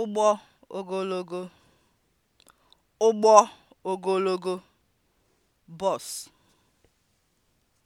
ụgbọ ogologo (ụgbọ ogologo) bọs.